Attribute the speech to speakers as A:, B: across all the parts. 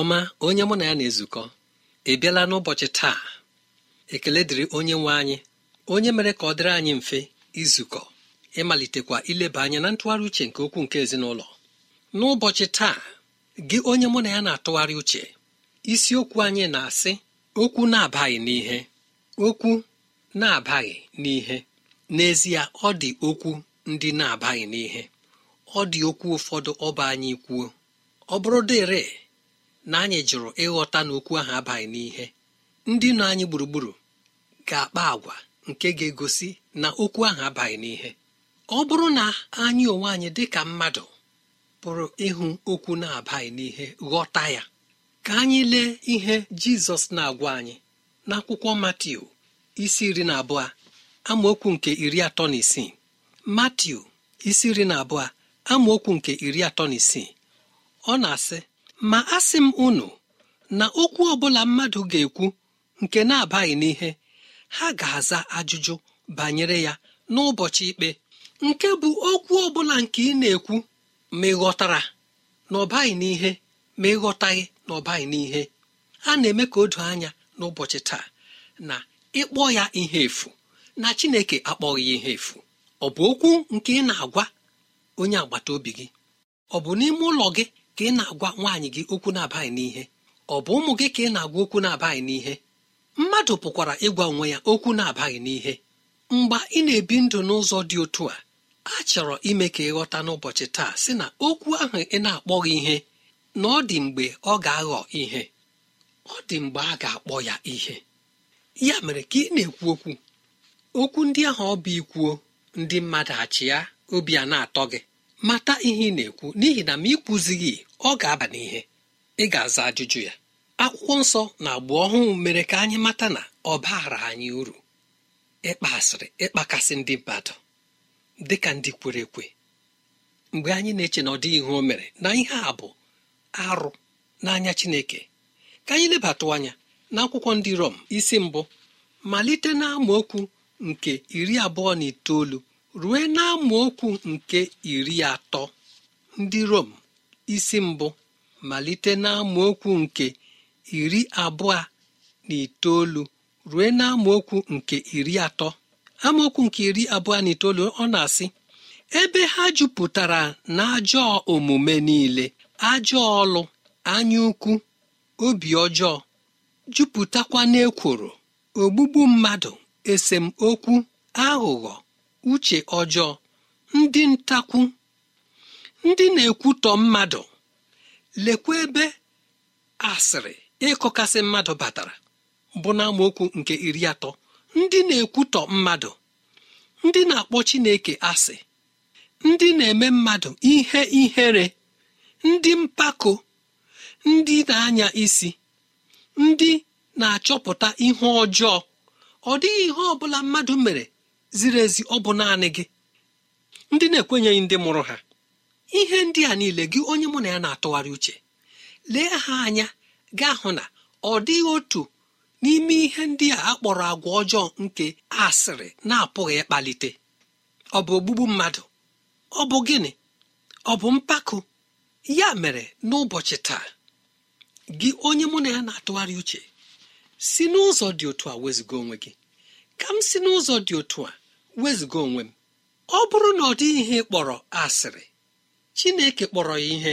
A: ọma onye mụ na ya na-ezukọ ị bịala n'ụbọchị taa ekele dịrị onye nwe anyị onye mere ka ọ dịrị anyị mfe izukọ ịmalitekwa ileba anya na ntụgharị uche nke okwu nke ezinụlọ n'ụbọchị taa gị onye mụ na ya na-atụgharị uche isiokwu anyị na-asị okwu na-abaghị n'ihe okwu na-abaghị n'ihe n'ezie ọ dị okwu ndị na-abaghị n'ihe ọ dị okwu ụfọdụ ọba anyị kwuo ọ bụrụ dịrị na anyị jụrụ ịghọta na okwu ahụ abaghị n'ihe ndị nọ anyị gburugburu ga-akpa agwa nke ga-egosi na okwu ahụ abaghị n'ihe ọ bụrụ na anyị onwe anyị dị ka mmadụ pụrụ ịhụ okwu na-abaghị n'ihe ghọta ya ka anyị lee ihe jizọs na-agwa anyị n'akwụkwọ matiu isi iri na abụọ amaokwu nke iri atọ na isii matiu isi iri na abụọ amaokwu nke iri atọ na isii ọ na-asị ma a sị m unu na okwu ọbụla mmadụ ga-ekwu nke na-abaghị n'ihe ha ga-aza ajụjụ banyere ya n'ụbọchị ikpe nke bụ okwu ọbụla nke ị na-ekwu ma ịghọtara ghọtara na ọbaghị n'ihe ma ịghọtaghị ghọtaghị na ọbaghị n'ihe a na-eme ka o doo anya n'ụbọchị taa na ịkpọ ya ihe efu na Chineke akpọghị ya ihe efu ọ bụ okwu nke ị na-agwa onye agbata obi gị ọ bụ n'ime ụlọ gị ka ị na-agwa nwaanyị gị okwu na-abaghị n'ihe ọ bụ ụmụ gị ka ị na-agwa okwu na-abaghị n'ihe mmadụ pụkwara ịgwa onwe ya okwu na-abaghị n'ihe mgbe ị na-ebi ndụ n'ụzọ dị otu a a chọrọ ime ka ịghọta n'ụbọchị taa sị na okwu ahụ ị na-akpọghị ihe na ọ dị mgbe ọ ga-aghọ ihe ọ dị mgbe a ga-akpọ ya ihe ya mere ka ị na-ekwu okwu okwu ndị ahụ ọ bụ ikwuo ndị mmadụ achị ya obi a na-atọ gị mata ihe ị na-ekwu n'ihi na ma ị kwuzighị ọ ga-aba n'ihe ị ga-aza ajụjụ ya akwụkwọ nsọ na agba ọhụụ mere ka anyị mata na ọ baara anyị uru ịkpa asịrị ịkpakasị ndị mmadụ dị ka ndị kwere ekwe mgbe anyị na-eche na ọ dịghị ihe o mere na ihe a bụ arụ n'anya Chineke ka anyị lebatụ anya na akwụkwọ ndị Rom isi mbụ malite na amaokwu nke iri abụọ na itoolu rue na amaokwu nke iri atọ ndị rom isi mbụ malite na amaokwu nke iri abụọ na itoolu rue na amaokwu nke iri atọ amaokwu nke iri abụọ na itoolu ọ na-asị ebe ha jupụtara na ajọ omume niile ajọ ọlụ anya ukwu obi ọjọọ jupụtakwa n'ekworo ogbugbu mmadụ esemokwu aghụghọ uche ọjọọ ndị ntakwu ndị na-ekwutọ mmadụ lekwa ebe asịrị ịkọkasị mmadụ batara bụ na nke iri atọ ndị na-ekwutọ mmadụ ndị na-akpọ chineke asị ndị na-eme mmadụ ihe ihere ndị mpako ndị na-anya isi ndị na-achọpụta ihe ọjọọ ọ dịghị ihe ọ mmadụ mere ziri ezi ọ bụ naanị gị ndị na-ekwenyeghị ndị mụrụ ha ihe ndị a niile gị onye mụ na ya na-atụgharị uche lee ha anya gaa hụ na ọ dịghị otu n'ime ihe ndị a akpọrọ agwa ọjọọ nke asịrị na-apụghị ịkpalite ọ bụ ogbugbu mmadụ ọ bụ gịnị ọ bụ mpako ya mere n'ụbọchị taa gị onye mụ na ya na-atụgharị uche si n'ụzọ dị otu a wezụga onwe gị ka m si n'ụzọ dị otu a wezuga onwe m ọ bụrụ na ọ dị ihe kpọrọ asịrị chineke kpọrọ ya ihe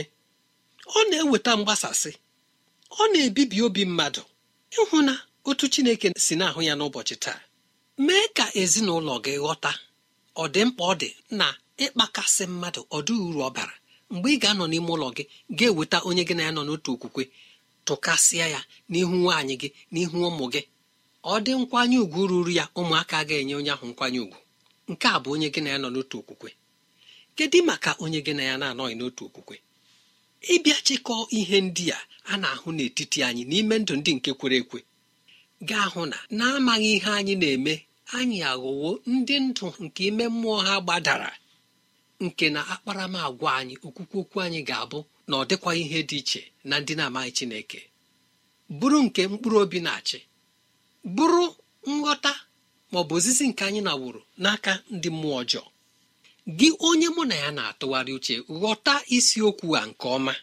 A: ọ na-eweta mgbasasị ọ na-ebibi obi mmadụ ịhụ na otu chineke si na-ahụ ya n'ụbọchị taa mee ka ezinụlọ gị ghọta ọ dị mkpa ọ dị na ịkpakasị mmadụ ọdụ uru ọ bara mgbe ị ga-anọ n'ime ụlọ gị ga-eweta onye gị na ya nọ n'otu okwukwe tụkasịa ya n'ihu nwaanyị gị n'ihu ụmụ gị ọ dị nkwanye ùgwù ruru ya ụmụaka ga-enye onye ahụ nkwanye ùgwù nke a bụ onye gị na ya nọ n'otu okwukwe kedu maka onye gị na ya na-anọghị n'otu okwukwe ịbịa chịkọọ ihe ndị a a na-ahụ n'etiti anyị n'ime ndụ ndị nke kwere ekwe ga-ahụ na na-amaghị ihe anyị na-eme anyị aghọwo ndị ndụ nke ime mmụọ ha gbadara nke na akparamagwa anyị okwukwe okwu anyị ga-abụ na ọ dịkwa ihe dị iche na ndị na-amaghị Chineke bụrụ nke mkpụrụ obi na-achị bụrụ nghọta ma ọ bụ ozizi nke anyị naworo n'aka ndị mmụọ ọjọọ gị onye mụ na ya na-atụgharị uche ghọta isiokwu a nke ọma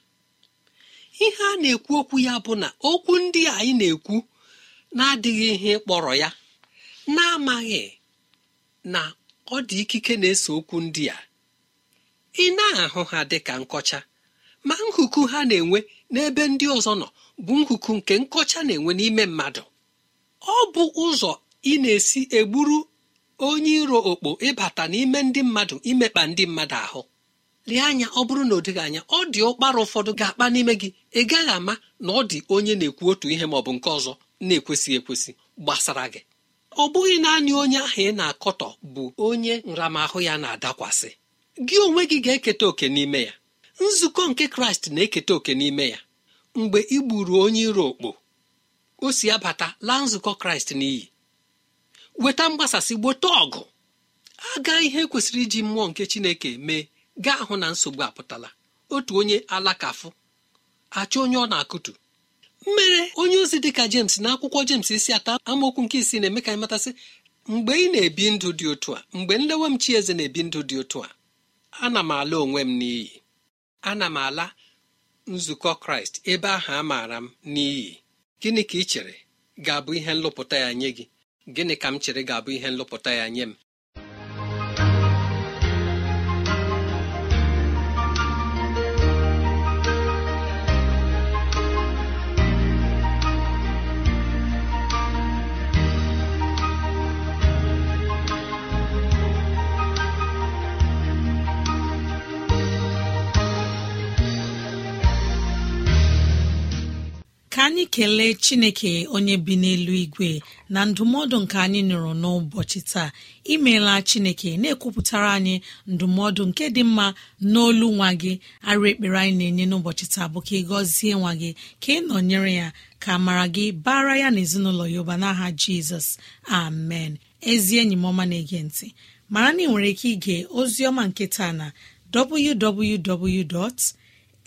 A: ihe a na-ekwu okwu ya bụ na okwu ndị anyị na-ekwu na-adịghị ihe kpọrọ ya na-amaghị na ọ dị ikike na ese okwu ndị a ị na-ahụ ha dị ka nkọcha ma nkuku ha na-enwe n'ebe ndị ọzọ nọ bụ nkuku nke nkọcha na-enwe n'ime mmadụ ọ bụ ụzọ ị na-esi egburu onye iro okpo ịbata n'ime ndị mmadụ imekpa ndị mmadụ ahụ lee anya ọ bụrụ na ọ dịghị anya ọ dị ụkpara ụfọdụ ga-akpa n'ime gị ị gaghị ama na ọ dị onye na-ekwu otu ihe ma ọ bụ nke ọzọ na-ekwesị ekwesị gbasara gị ọ bụghị naanị onye ahụ ị na-akọtọ bụ onye nramahụ ya na-adakwasị gị onwe gị ga-eketa oke n'ime ya nzukọ nke kraịst na-eketa oke n'ime ya mgbe ị gburu onye iro okpo o si abata laa nzukọ kraịst n'iyi weta mgbasasị gbote ọgụ aga ihe kwesịrị iji mmụọ nke chineke mee gaa hụ na nsogbu apụtala otu onye alakafụ achọ onye ọ na-akụtu mmere onye ozi dịka jems na akwụkwọ jems isi ata amaokwu nke isi na-eme ka anyị mgbe ị na-ebi ndụ dị otu a mgbe nlewe m chieze na-ebi ndụ dị otu a ana m ala onwe m n'iyi ana m ala nzukọ kraịst ebe ahụ a maara m n'iyi gịnị ka ị chere ga-abụ ihe nlụpụta ya nye gị gịnị ka m chere ga-abụ ihe nlụpụta ya nye m
B: anyị kelee chineke onye bi n'elu igwe na ndụmọdụ nke anyị nụrụ n'ụbọchị taa imeela chineke na-ekwupụtara anyị ndụmọdụ nke dị mma n'olu nwa gị arụ ekpere anyị na-enye n'ụbọchị taa bụ ka ị gọzie nwa gị ka ị nọnyere ya ka mara gị bara ya na ezinụlọ ya ụba n'aha jizọs amen ezi enyi m ọma na-ege ntị mara na ị nwere ike ige ozi ọma nke taa na www.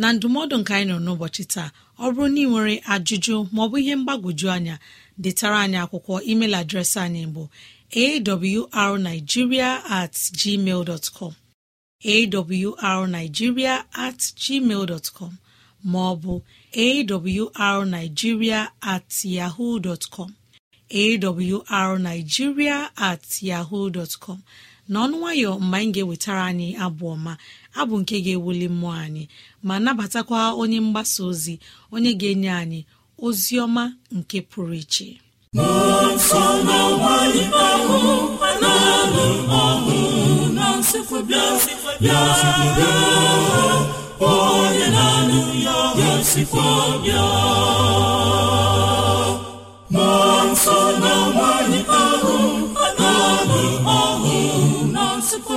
B: na ndụmọdụ nke anyị nọ n'ụbọchị taa ọ bụrụ na ị nwere ajụjụ maọbụ ihe mgbagwoju anya detara anyị akwụkwọ email adreesị anyị bụ arigiria at gmail dot com awrnigeria at gmail com maọbụ awrnigeria at yahoo com at yahoo dot com n'ọnụ nwayọ mgbe anyị ga-ewetara anyị abụ ọma abụ nke ga-ewuli mmụọ anyị ma nabatakwa onye mgbasa ozi onye ga-enye anyị ozi ọma nke pụrụ iche
C: nsọ na nwanyị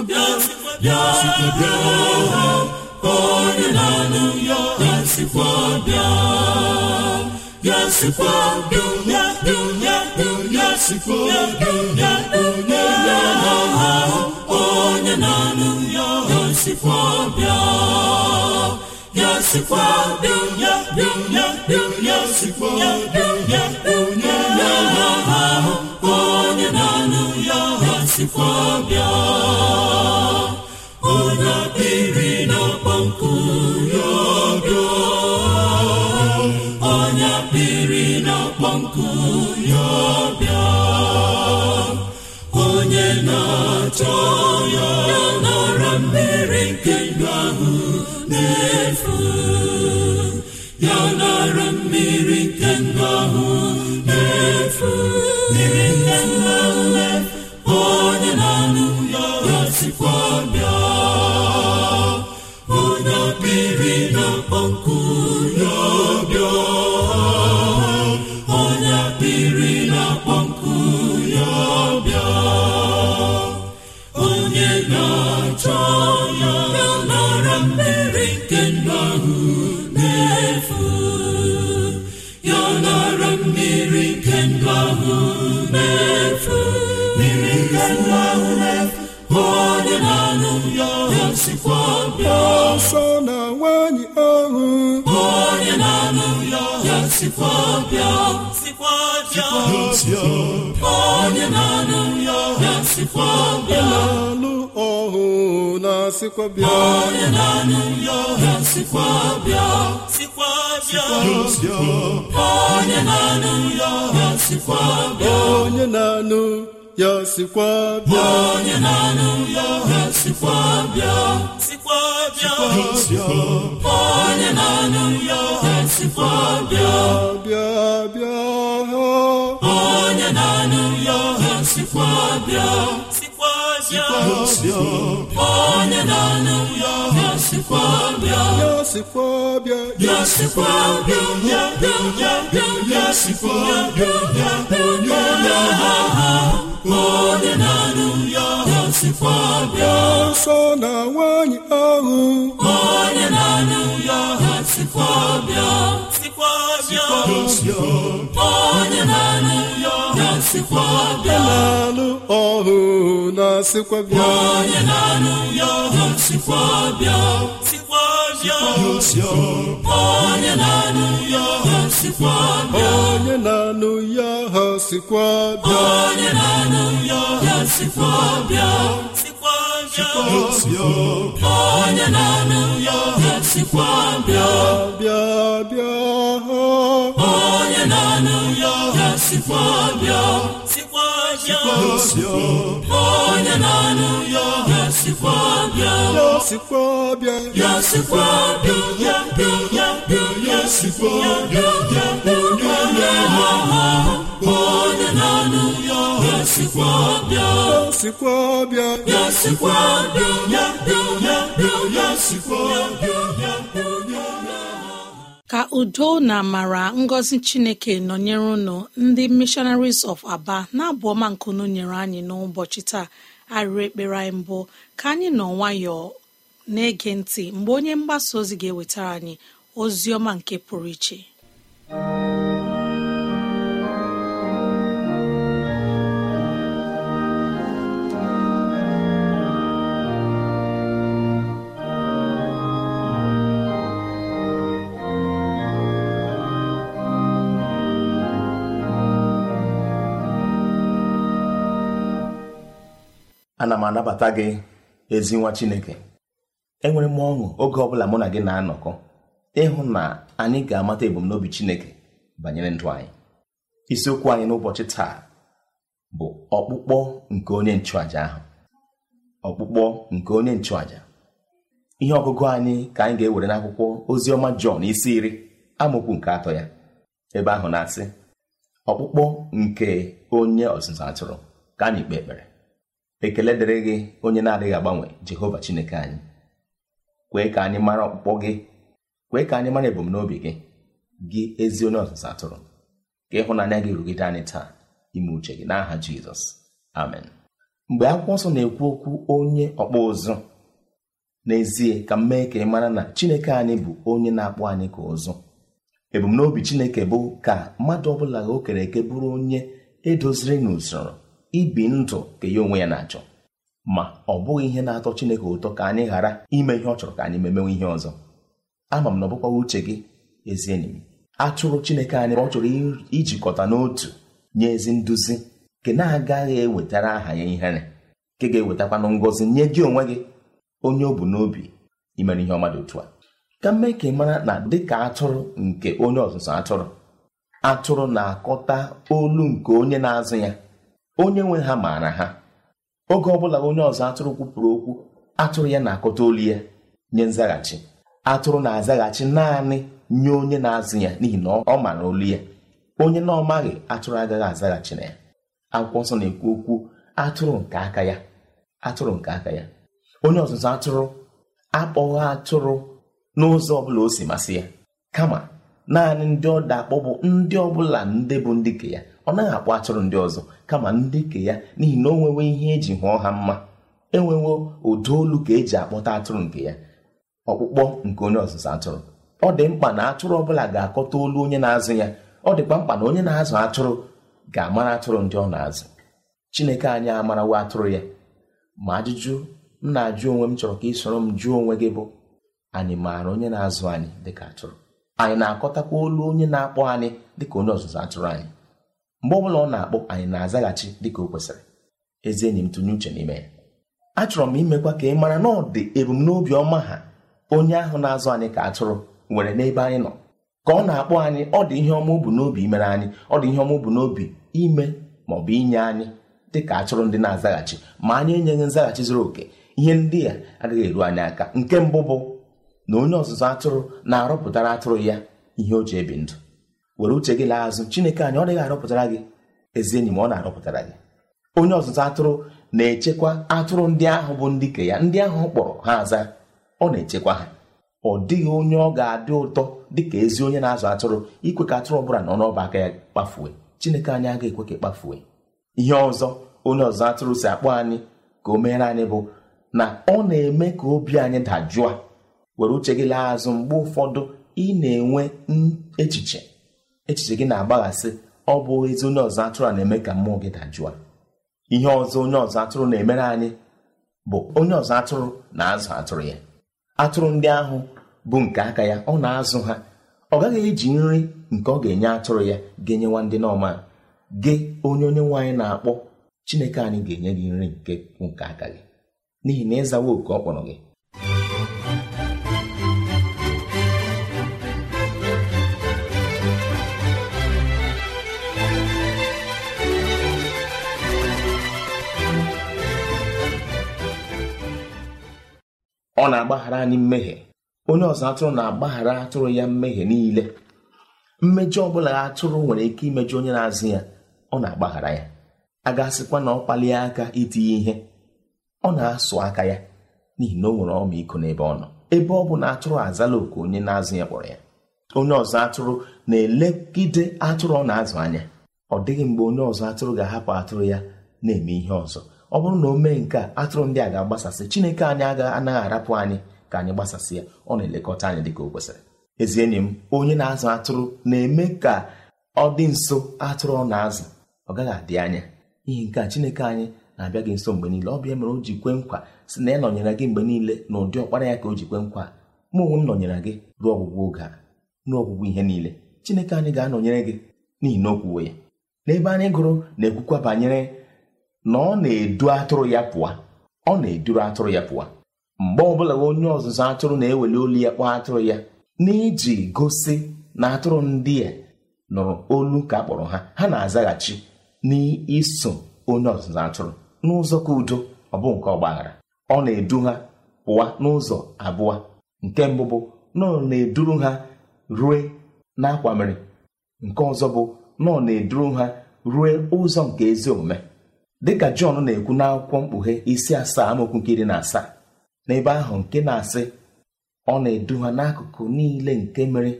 C: ha onye na-anụ ya ya sikwa bịa ya sikwa dunya dunya dunya sikwa dunya dunya ha onye na-anụ ya sikwa bịa ya sikwa dunya dunya ya ha onye na nke ndụ ahụ na-efu ya nara mmiri nke ndụ ahụ na-efu mmiri nke ndụ ahụ na-efu onye na-anụ ya ya ọsọ na nwanyị ahụ onye na-anụ ya sikwa bịa sikwa bịa onye na-anụ ya sikwa bịa na-alụ ọhụ na-asịkwa bịa onye na-anụ ya sikwa bịa sikwa onye na-anụ ya sikwa bịa onye na-anụ ya sikwa bịa onye na-anụ ya sikwa bịa sikwa bịa onye na-anụ ya ohe sikwa bịa bịa bịa ya ohe sikwa bịa sikwa bịa onye na ya bịa ya bịa ya bịa ya ya ya ya ya bịa onye na-anụ ya sikwa bịa nsọ na nwanyị ahụ onye na-anụ ya sikwa bịa sikwa bịa onye na-anụ ya sikwa bịa na-alụ ọhụ na sikwa bịa onye na-anụ ya sikwa bịa onye na-anụ ya ha sikwa bịa onye na sikwa bịa onye na-anụ
B: ka udo na mara ngozi chineke nonyere unu ndi mishonaris of aba na-abụ ọma nkunu nyere anyị n'ụbọchị taa arịrị ekpere anyị mbụ ka anyị nọ nwayọọ na-ege ntị mgbe onye mgbasa ozi ga-ewetara anyị ozi ọma nke pụrụ iche
D: ana m anabata gị ezi nwa chineke enwere m ọṅụ oge ọbụla mụ na gị na-anọkọ ịhụ na anyị ga-amata ebumnobi chineke banyere ndụ anyị isiokwu anyị n'ụbọchị taa bụ ọkpụkpọ nke onye nchụaja ahụ ọkpụkpọ nke onye nchụàja ihe ọgụgụ anyị ka anyị ga-ewere n'akwụkwọ ozi ọma Jọn isi iri amaokwu nke atọ ya ebe ahụ na-asị ọkpụkpọ nke onye ọzụzụ atụrụ ka anyị kpee ekpere ekele dịrị gị onye na-adịghị agbanwe jehova chineke anyị kwee ka anyị mara ọkpụkpọ gị kwee ka anyị mara ebumnobi gị gị ezi onye ọzụzụ atụrụ ka ịhụnanya gị rugide anyị taa ime uche gị n'aha jizọs amen mgbe akwụkwọ nsọ na-ekwu okwu onye ọkpụ ụzụ n'ezie ka m mee ka ị mara na chineke anyị bụ onye na-akpụ anyị ka ụzụ ebumnobi chineke bụ ka mmadụ ọbụla o kere eke bụrụ onye edoziri n'usoro ibi ndụ ka ya onwe ya na-achọ ma ọ bụghị ihe na-atọ Chineke ụtọ ka anyị ghara ime ihe ọ chọrọ ka anyị memewe ihe ọzọ ama m na ọ uche gị ezi enyi m atụrụ Chineke anyị ọ chọrọ ijikọta n'otu nye ezi nduzi nke na-agaghị ewetara aha ya ihere nke ga-ewetakwanụ ngọzi nye gị onwe gị onye ọ bụ n'obi imere ihe ọma dị otu a ka mmee ka ị mara na dịka atụrụ nke onye ọzụzụ atụrụ atụrụ na-akọta olu nke onye na-azụ ya onye nwe ha maara ha oge ọbụla onye ọzọ atụrụ kwupụrụ okwu atụrụ ya na-akọta olu ya nye nzaghachi atụrụ na-azaghachi naanị nye onye na-azụ ya n'ihi na ọ maara olu ya onye na ọmaghị atụrụ agaghị azaghachi na ya akwụkwọ nsọ na-ekwu okwu atụrụ nke aka ya atụrụ nke aka ya onye ọzụzụ atụrụ akpọghị atụrụ n'ụzọ ọbụla o si masị ya kama naanị ndị ọ da akpọ bụ ndị ọbụla ndị bụ ndị nke ya ọ naghị akpọ atụrụ ndị ọzọ kama ndị ke ya n'ihi na o nwewe ihe eji hụọ ha mma enwewo ụdị olu ka eji akpọta atụrụ nke ya ọkpụkpọ nke onye ọzụzụ atụrụ ọ dị mkpa na atụrụ ọbụla ga-akọta olu onye na-azụ ya ọ dịkwa mkpa na onye na-azụ atụrụ ga-amara atụrụ ndị ọ na-azụ Chineke anyị amarawa atụrụ ya ma ajụjụ m na-ajụ onwe m chọrọ ka ị soro m jụọ onwe gị bụ anyị maara onye na-azụ anyị dịka atụrụ anyị na-akọtakwa olu onye na-akpọ anyị dịka onye ọzụzụ atụrụ anyị mgbe ọbụla ọ na-akpọ anyị na-azaghachi dịka o kwesịrị ezi enyi m tụnye uche n'ime ya achọrọ m imekwa ka ị mara na ọ dị ebumnobi ọma ha onye ahụ na-azụ anyị ka atụrụ nwere n'ebe anyị nọ ka ọ na-akpọ anyị ọ dị ihe ọma ubu n'obi imere anyị ọ dị ihe ọma ubu n'obi ime ma ọ bụ inye anyị dị ka atụrụ ndị na-azaghachi ma anyị enyeghị nzaghachi zuru oke ihe ndị a agaghị eru anyị aka nke mbụ bụ na onye ọzụzụ atụrụ na-arọpụtara atụrụ ya ihe o ji ebi ndụ were uche gị laa azụ chineke anyị ọ dịghị arọpụtara gị ezi enyi ma ọ na-arọpụtara gị onye ọzụzụ atụrụ na-echekwa atụrụ ndị ahụ bụ ndị ke ya ndị ahụ kpọrọ ha aza ọ na-echekwa ha ọ dịghị onye ọ ga-adị ụtọ dịka ezi onye na-azụ atụrụ ikwe ka atụrụ ọbụla nọ n'ọba aka ya kpafue chineke anyị agaghị ekwe ka e kpafue ihe ọzọ onye ọzụzụ atụrụ si akpọ anyị ka o meere anyị bụ na ọ na-eme ka obi anyị dajụọ were uche gị laa azụ mgbe ụfọdụ ị na-enwe echiche echiche gị na-agbaghasị ọ bụ ezi onye ọzọ atụrụ a na-eme ka mmụọ gị dajụọ. ihe ọzọ onye ọzọ atụrụ na-emere anyị bụ onye ọzọ atụrụ na-azụ atụrụ ya atụrụ ndị ahụ bụ nke aka ya ọ na-azụ ha ọ gaghị eji nri nke ọ ga-enye atụrụ ya ga-enyewa ndị n'ọma gị onye onye nwaanyị na-akpọ chineke anyị ga-enye gị nri nke nke aka gị n'ihi na ịzawa oke ọ kpọrọ gị ọ na-agbaghara anyị mmehie onye ọzọ atụrụ na-agbaghara atụrụ ya mmehie niile mmejọ ọbụla atụrụ nwere ike imejọ onye na-azụ ya ọ na-agbaghara ya a asịkwa na ọ kpalie aka itinye ihe ọ na-asụ aka ya n'ihi na o nwere ọmịiko n'ebe ọ nọ ebe ọ bụ na atụrụ azala oku onye na-azụ ya kpọrọ ya onye ọzọ atụrụ na-elegide atụrụ ọ na-azụ anya ọ dịghị mgbe onye ọzọ atụrụ ga-ahapụ atụrụ ya na-eme ihe ọzọ ọ bụrụ na o mee nke a atụrụ ndị a ga-agbasasị chineke anyị agaghị anaghị arapụ anyị ka anyị gbasasị ya ọ na-elekọta anyị dịka o kwesịrị ezi enyi m onye na-azụ atụrụ na-eme ka ọ dị nso atụrụ ọ na-azụ ọ gaghị adị anya ihe nke a chineke anyị na-abịa gị nso mgbe niile ọ bịa mere o ji kwe nkwa si na ya nọnyere gị mgbe niile na ụdị ọkpara ya ka o ji kwe nkwa mụ onwe m nọnyere gị ruo ọgwụgwụ oge a ruo ọgwụgwụ ihe niile chineke anyị ga-anọnyere gị n'ihi na o ya n'ebe anyị gụrụ na-ekwukwa banyere na ọ na-edu atụrụ ya pụa ọ na-eduru atụrụ ya pụa mgbe ọbụla onye ọzụzụ atụrụ na-eweli olu ya kpọọ atụrụ ya n'iji gosi na atụrụ ndị a nụrụ olu ka akpọrọ ha ha na-azaghachi n'iso onye ọzụzụ atụrụ n'ụzọ ka udo ọ bụ nke ọgbaghara ọ na-edu ha pụwa n'ụzọ abụọ nke mbụ bụ na ọ na-eduru ha rue n'akwamiri nke ọzọ bụ na ọ na-eduru ha rue ụzọ nke ezi omume dịka jọn na-ekwu n'akwụkwọ mkpughe isi asaa amaokwu nke iri na asaa n'ebe ahụ nke na-asị ọ na-edu ha n'akụkụ niile nke mere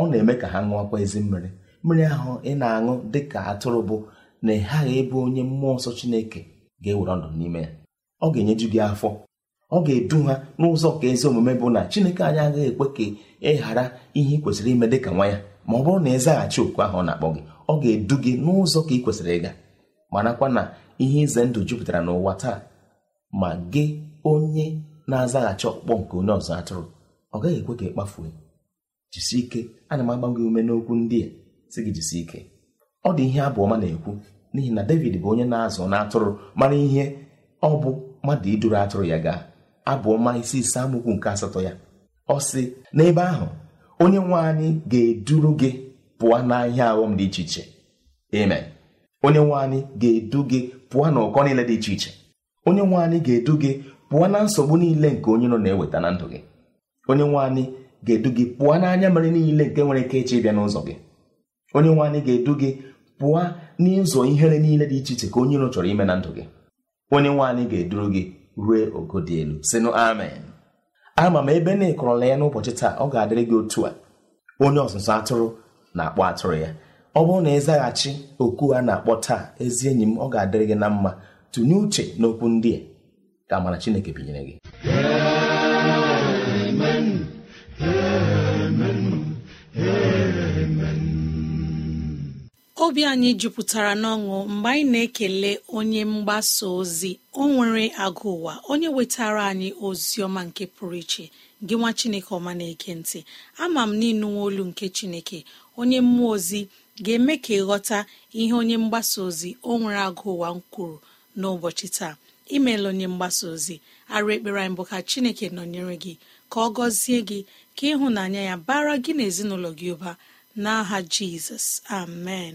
D: ọ na-eme ka ha ṅụọkwa ezi mmiri mmiri ahụ ị na-aṅụ dịka atụrụ bụ na ị ghaghị ịbụ onye mmụọ nsọ Chineke ga-ewere ọdụ n'ime ya ọ ga-enyeju gị afọ ọ ga-edu ha n'ụzọ ka ezi omume bụ na Chineke anyị agaghị ekwe ka ị ghara ihe ị kwesịrị ime dịka nwa ya ma ọ bụrụ na ị zaghachi ahụ ọ na-akpọ gị ọ ga-edu gị n'ụzọ ka ị kwesịrị ịga marakwa na ihe ize ndụ jupụtara n'ụwa taa ma gị onye na-azaghachi ọkpụkpọ nke onye ọzọ atụrụ ọ gaghị ekwe ka ị kpafuo ike ana m agba gị ume n'okwu ndị a si gị jisi ike ọ dị ihe abụọma na-ekwu n'ihi na david bụ onye na-azụ na atụrụ mara ihe ọ bụ mmadụ iduru atụrụ ya gaa abụọma isi ise amokwu nke asatọ ya ọ sị n'ebe ahụ onye nwe anyị ga-eduru gị pụọ n'ahịa aghọm dị iche iche amen onye nwe anyị ga-edu gị pụọ na ụkọ niile dị iche iche onye nwe anyị ga-edu gị pụọ na nsogbu niile nke onye nọ na-eweta na ndụ gị onye nwe anyị ga-edu gị pụọ n'anya mere niile nke nwere ike ịche ịbịa n'ụzọ gị onye nwe anyị ga-edu gị pụọ n'ịzọ ihere niile dị iche iche ka onye chọrọ ime na ndụ gị onye nwe anyị ga-eduru gị rue ogo dị elu sịnụ amen ama m ebe na-ekọrọla ya n'ụbọchị taa ọ ga-adịrị gị otu a onye ọzụzụ atụrụ na-akpọ atụrụ ya ọ bụrụ na ịzaghachi oku a na-akpọ taa ezi enyi m ọ ga-adịrị gị na mma tụnye uche n'okwu ndị a ka amara chineke binyere gị
B: obi anyị jupụtara n'ọṅụ mgbe anyị na-ekele onye mgbasa ozi o nwere agụ ụwa onye wetara anyị ozi ọma nke pụrụ iche gị nwa chineke ọma na ekentị ama m n'ịnụnwa olu nke chineke onye mmụọ ozi ga-eme ka ịghọta ihe onye mgbasa ozi o nwere agụ ụwa m kwuru n'ụbọchị taa imeela onye mgbasa ozi arụ ekpere anyị ka chineke nọnyere gị ka ọ gọzie gị ka ịhụnanya ya bara gị na ezinụlọ gị ụba n'aha jizọs amen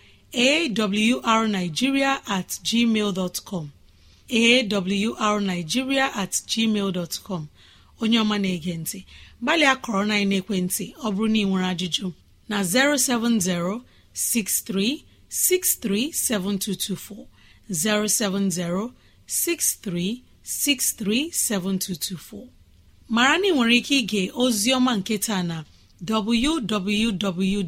B: awrnigeria at gmail awrnigeria at onye ọma na-ege ntị gbalịa kọrọ na ekwentị ọ bụrụ na ị nwere ajụjụ na 07063637224 7224. mara na ị nwere ike ige ozi ọma nke taa na www.